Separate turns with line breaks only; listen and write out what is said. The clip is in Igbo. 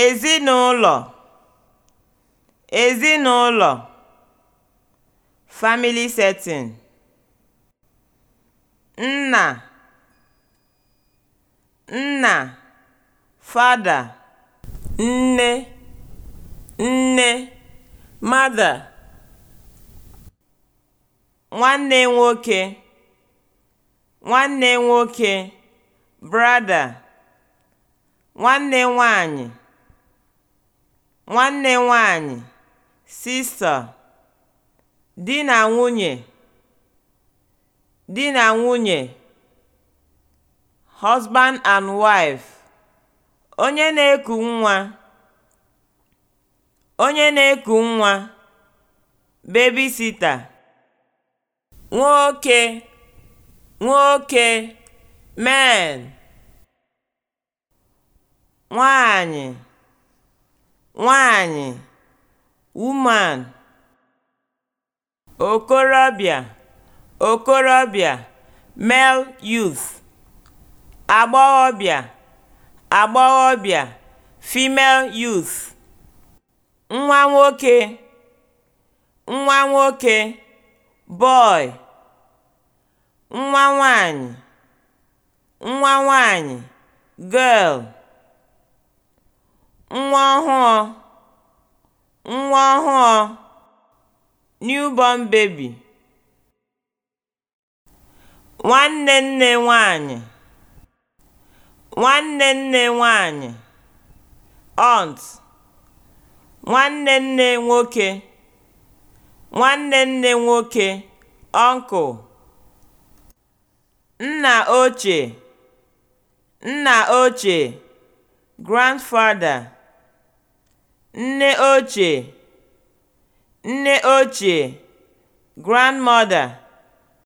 ezinụlọ ezinụlọ (family setting) nna nna (father) nne nne (mother) nwanne nwoke nwanne nwoke (brother) nwanne nwanyị nwanne nwanyị (sista), di na nwunye (di na nwunye), husband and wife (onye na-eku nwa), onye na-eku nwa, babysitter, nwoke nwoke (men), nwanyị nwaanyị (woman), okorobịa (okorobịa, male youth), agbọghọbịa (agbọghọbịa, female youth), nwa nwoke (nwa nwoke, boy), nwa nwaanyị (nwa nwaanyị, girl) nwa ọhụụ nwa ọhụụ (newborn baby), nwanne nne nwanyị nwanne nne nwanyị (aunt), nwanne nne nwoke nwanne nne nwoke (uncle), nna ochie nna ochie (grandfather) nne ochie (nne ochie, grandmother)